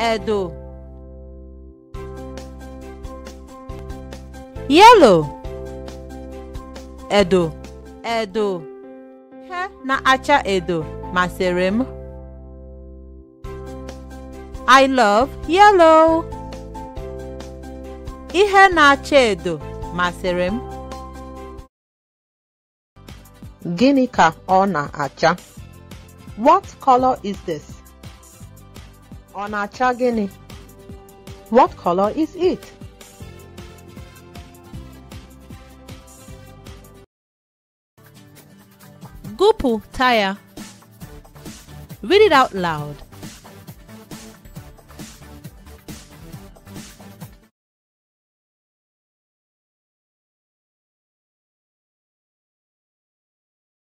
Edo, yellow edo edo ihe na-acha edo maserim. I love yellow ihe na-acha edo maserim. Guinea ka ọ na-acha? What color is this? On na What color is it? Gupu tire. Read it out loud.